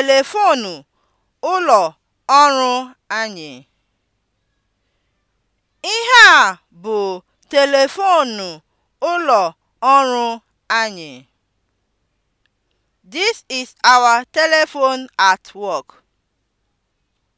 Telefoonu ụlọ ọrụ anyị. Ihe a bụ telefoonu ụlọ ọrụ anyị. This is our telephone at work.